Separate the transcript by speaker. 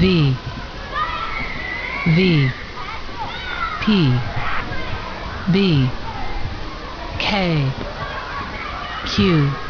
Speaker 1: V V P B K Q